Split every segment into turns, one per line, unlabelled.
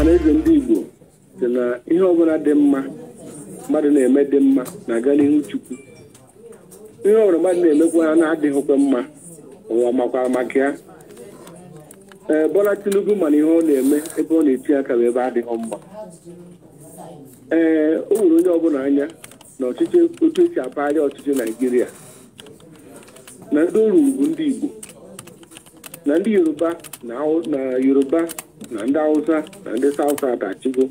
mana eze ndị Igbo sị na ihe ọbụla dị mma mmadụ na-eme dị mma na-aga n'ihu Chukwu ihe ọbụla mmadụ na-emekwa ha na-adịghịkwa mma ụwa makwa maka ya ee Bola Tinubu mana ihe ọ na-eme ebe ọ na-eti aka bụ ebe adịghị mma ee o nwere onye ọbụla anya na ọchịchị otu esi apagharị ọchịchị Naijiria na ndị oru bụ ndị Igbo na ndị Yoruba na Yoruba na ndị Hausa na ndị saụsa atachigo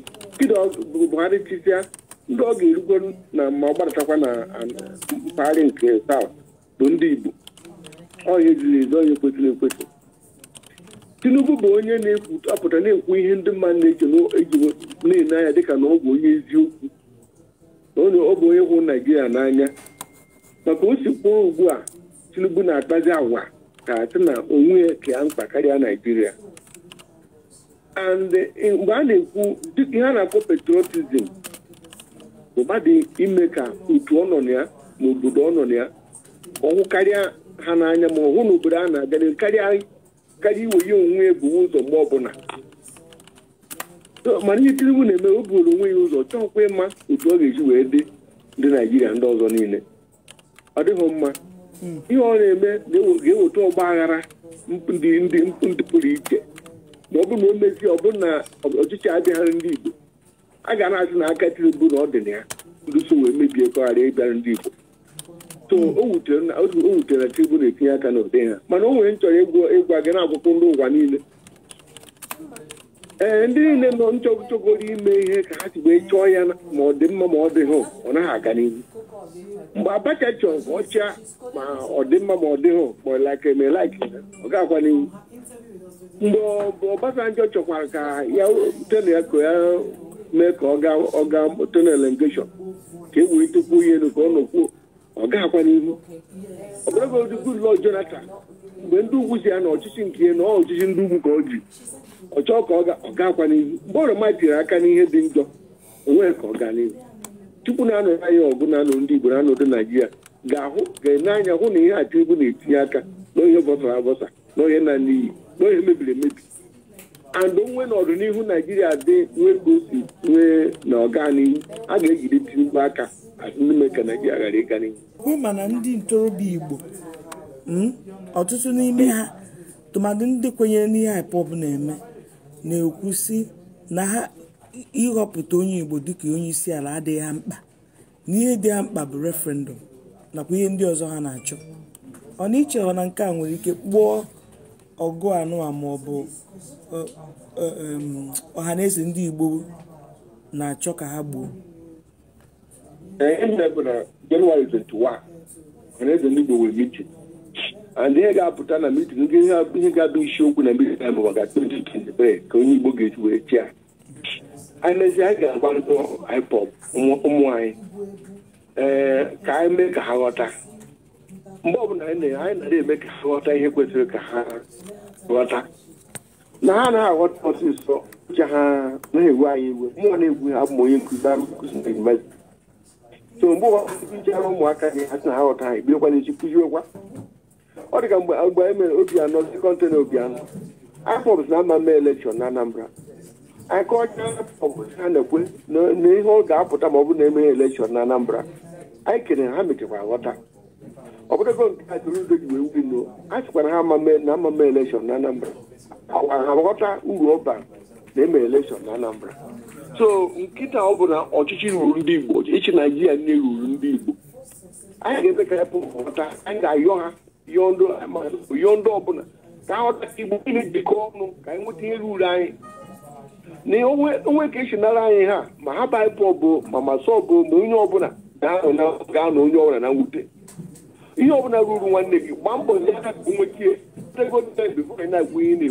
Buhari chisia ndị ọ ga-erugo na ma ọ na mpaghara nke South bụ ndị Igbo ọya ejiri ezo onye kwesịrị ekwesị Tinubu bụ onye na-apụta na-ekwu ihe ndị mmadụ na-eji na-ele anya dịka na ọ bụ onye eziokwu ọ bụ onye hụrụ Naijiria n'anya maka o si kwuo ugbu a Tinubu na-akpazi agwa ka sị na onwe ya kee mkpa karịa Naijiria and eh, mgbe a na-ekwu ihe a na-akpọ patriotism bụ ime ka otu ọ nọ na ya na obodo ọ nọ na ya ọhụ karịa ha n'anya ma ọhụ na obodo a na-aga karịa karịa iwe ya onwe ya ebuwe ụzọ mgbe ọbụla mana ihe Tinubu na-eme o buru onwe ya ụzọ chọọkwa ịma otu ọ ga-eji wee dị ndị Naijiria ndị ọzọ niile ọ dịghị mma hmm. ihe ọ na-eme ga-eweta ọgba aghara ndị pụrụ iche ma ọ bụrụ na o mezie ọ bụrụ na ọchịchị abịaghara ndị Igbo a ga na-asị na aka Tinubu na ọ dị na ya wee mebie kọgharịa ịbịara ndị Igbo o wutere na Tinubu na-etinye aka n'ụdị ha mana o nwere nchọrọ ịgwa gị na-agwụkwụ ndị ụwa niile ee ndị niile nọ nchọgụchọgoro ime ihe ka ha si wee chọọ ya ma ọ dị mma ma ọ dịghị ọ naghị aga n'ihu mgbe Abacha chọrọ ọcha ma ọ dị mma ma ọ dịghị ma ọ like ma like ọ ga-agwa n'ihu mgbe njọ chọkwara ka ya tena ya ka ya mee ka ọ ga tena elengeshọn ka e wee tupu ya elu ka ọ nọkwuo ọ ga-akwa n'ihu ọbụrụgodị Goodluck Jonathan mgbe ndị ugwu si ya na ọchịchị nke ya na ọ ọchịchị ndị ugwu ka ọ ji ọ chọọ ka ọ ga-akwa n'ihu mgbe oroma tiri aka n'ihe dị njọ onwe ka ọ gaa n'ihu tupu na-anọrọ anya ọgụ na-anọ ndị Igbo na-anọdụ Naijiria ga-ahụ ga-ene anya hụ na ihe a Tinubu na-etinye aka na ihe bọsara abọsa na na n'iyi na mebiri emebi and onwe n'ọdịnihu naijiria dị nwee ka o si nwee na ọganihu a ga ejide mkpu aka n'ime ka naijiria ghara ịga n'ihu
bụ mana ndị ntorobịa igbo hmm, ọtụtụ n'ime ha tụmadị ndị kwenyere n'ihe IPOB na-eme na-ekwusi ekwu na ha ịghọpụta onye igbo dịka onye isi ala adịghị ha mkpa na ihe dị ha mkpa bụ referendum nakwa ihe ndị ọzọ ha na-achọ ọ na iche na nke a nwere ike kpụọ ọgụ anụwa maọbụ ọhaneze ndị Igbo na-achọ ka ha gbuo
Jenụwarị 21 ọhaneze ndị Igbo nwere mitin and ihe ga-apụta na mitin ihe ga-abụ isiokwu na mitin ahụ maka 2023 ka onye Igbo ga-eji wee chia anyị mezie anyị ga-agwa ndị IPOB ụmụ anyị ee ka anyị mee ka ha ghọta mgbe ọbụla anyị na-ere eme ka ha ghọta ihe kwesịrị ka ha ghọta na ha anaghị aghọta ọsịsọ uche ha na-ewe anyị iwe mụọ na-egwu ha bụ onye nkụzi nkụzi na so mgbe ụwa ụmụaka gị ha na ha ghọta ha ibiokwa n'echi ọ dị ka mgbe agba emere obi anọ na obi anọ na ama mee elekshọn na Anambra anyị ha na na ihe ọ ga-apụta ma ọ bụrụ na emeghe na Anambra anyị kere ha mechekwara ghọta ọ bụrụgo nke a tụrụ udo ji wee wuri a sịkwa ha na amama elekshọn na anambra ọkwa ha ghọta uru ọba na-eme elekshọn na anambra so nkịta ọ bụ na ọchịchị ruru ndị igbo ịchị naijiria nne ruru ndị igbo anyị ga-eme ka epụ ghọta anyị ga-ayọ ha yọọ ndị ọbụla ka ha ghọta igbo niile jikọ ọnụ ka anyị nweta ihe ruru anyị na onwe ka esi nara anyị ha ma ha baịpụ ọbụ ma masọ ọbụ ma onye ọbụla ga-anọ onye ọbụla na mwute ihe ọ bụla ruru nwanne gị gbaa mbọ nwechie na ihe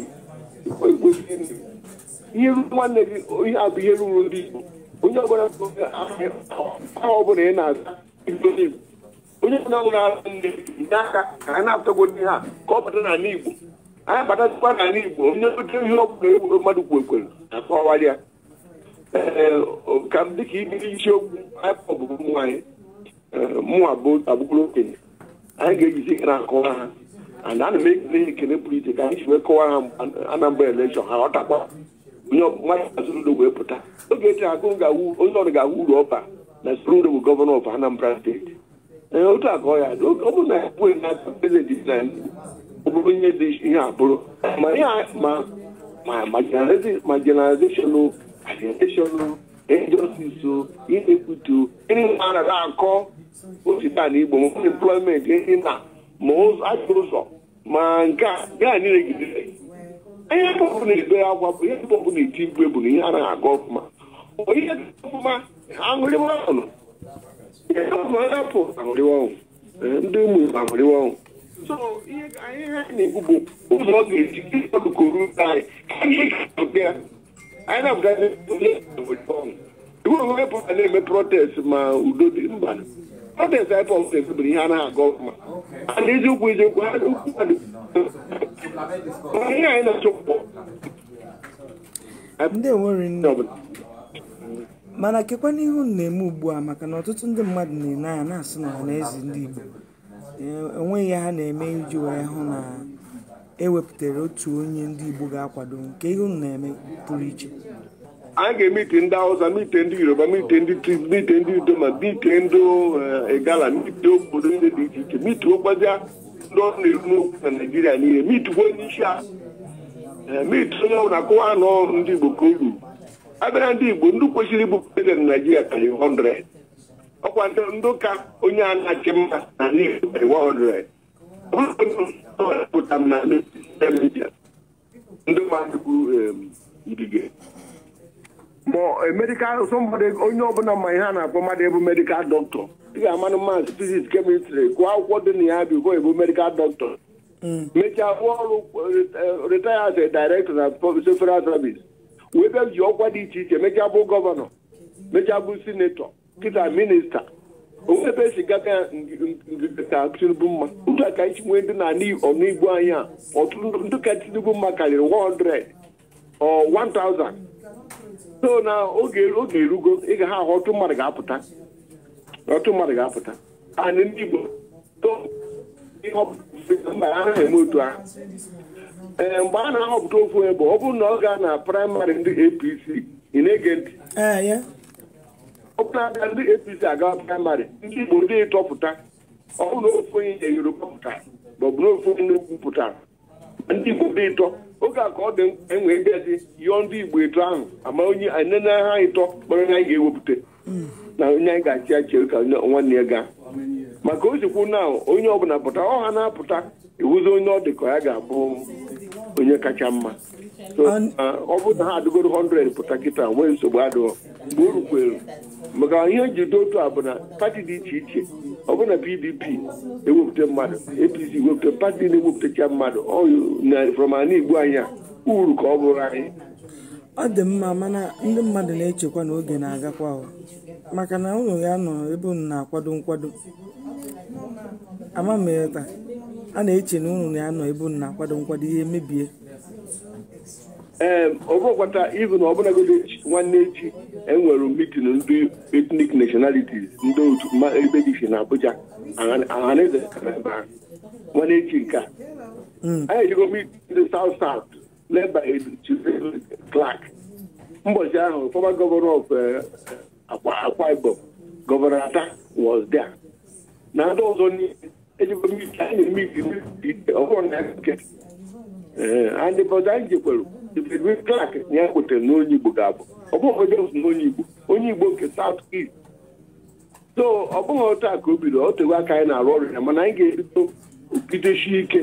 ruru nwanne gị ihe ihe ruru ndị igbo onye ọbụla ị na-aza onye ọbụla nwere ara nne nye aka ka a na-apụtago ndị ha ka ọ bata n'ala igbo anyị batakwa n'ala igbo onye oche ihe ọbụla egwu mmadụ kwu ekwere akọwara ya ka m dịka ibiri isiokwu anyị bụ ụmụ nwaanyị eh, bụ okenye anyị ga-ejizi gara akụwa ha ana ana m ekele ekele pụrụ iche ka anyị si wee kọwa ha anambra elekshọn ha ọtakwa onye ọmụmaụ wee pụta oge eche akụ onye ọrụ ga awụ uru ọba na Soludo bụ gọvanọ of Anambra steeti ee otu a ka ọ ya dị ọ bụrụ na ya na prezidenti ihe dị ihe abụrụ ma generalization generalization ejiosiso imekwutu ndị mara na-akọ osita na igbo employment ehi na ma ajọ ma nke a gaa niile gidere ihe na-ebe bụ ihe pọpụ na-eti igwe bụ na ihe ihe ọfụma aṅụrịwa anyị anyị na-abụkarị ihe iwe pụta na-eme protest ma udo dị mba protest anyị pọmpụ ebebere ihe a na-agọ ọfụma na eziokwu eziokwu ha ukwu mmadụ
ihe anyị na-achọpụ ndị nwere nne ọbụla mana kekwa n'ihu na-eme ugbu a maka na ọtụtụ ndị mmadụ na-ene anya na-asị na ọha na eze ndị Igbo enweghị ha na-eme iji wee hụ na ewepụtara otu onye ndị Igbo ga-akwado nke ihe na-eme pụrụ iche
anyị ga-emite ndị Hausa mite ndị Yoruba mite ndị mite ndị udoma mite ndị eh, Igala mite obodo ndị dị iche iche mituokwazia ndị ọrụ na-eru n'okwu na Naịjirịa niile mituo onye isi a eh, mit onye ọbụla akụwa nọ ndị Igbo ka oru abịara ndị Igbo ndị kwesịrị ịbụ prezident Naịjirịa karịrị 100 ọkwa ndị ụka onye a na-achị mma na 100 pụtara na ndị mmadụ onye ọbụla ma ihe a na-akpọ mmadụ ebu medikal doctor ị ga-amanụ maasị fiziks kemistri gụọ akwụkwọ dị na ya bụ ebu medical doctor mechaa rụọ ọrụ na wee bịa ji ọkwa dị iche iche mechaa bụ gọvanọ mechaa bụ sinetọ kịta minista efe si gaga ka tinubu mma ndị a ka anyị nwee ndị na ọnụigbo anya ọtụtụ ndị ka tinubu mma karịrị 100 or 1000 so na oge oge erugo ịga ha ahụ ọtụ mmadụ ga-apụta ọtụ mmadụ ga-apụta anyị ndị igbo anaghị eme otu ahụ ee eh, mgbe a na-ahọpụta ofu onye ọ bụrụ na ọ ga na praịmarị ndị apc ị na-ege ntị eh, na-abịa ndị APC aga praịmarị ndị Igbo ndị ịtọpụta ọ ofu onye Yoruba pụtara ma ọ bụ onye n'ugwu pụtara ndị Igbo dị ịtọ oge a ka ọ dị enwe gazi yọọ ndị Igbo ịtọ ahụ ama onye enene ha ịtọ kpọrọ onye anyị ga-ewepụta na onye anyị ga-achị achị ka nwanne ya gaa maka o jikwu na onye ọbụla pụta ọ ha na-apụta iwuzi onye ọ dị ka ya ga-abụ onye kacha mma ọ uh, bụ na ha adụgoro 100 pụta kịta nwee nsogbu adụghọ mgbe o rukwere maka ihe njide otu a bụ na pati dị iche iche ọ bụ na pdp ewepụta mmadụ apc ewepụta pati na-ewepụtacha mmadụ na ana igbu anya uru ka ọ bụrụ anyị
ọ dị mma mana ndị mmadụ na-echekwa na oge na-agakwa maka na ụlọ ya nọ ebe unu na-akwado nkwado amameta a na-eche na ụlọ ya nọ ebe unu na-akwado nkwado ihe mebie
ee ọ bụrụkwata na ọbụlagodi nwanne echi enwere mitin ndị etnik nationalities ndị otu ebe dị iche na Abuja ọhaneze nwanne echi nke a hmm. anyị ejigo ndị South South leba Clark mbọchị ahụ former governor of eh, Akwa Ibom Ata was there na ndị ọzọ ejigo anyị Ibedwe Clark na ya kwetere na onye Igbo ga-abụ ọ bụghị Jones onye Igbo onye Igbo nke South East so ọ bụghị otu a ka o bido o tego aka anyị na-arụ ọrụ ya mana anyị ga-ebido ogidechi ike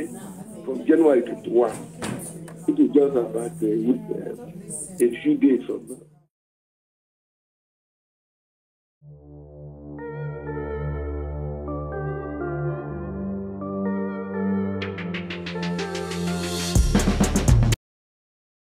from January 21 to just about a
few days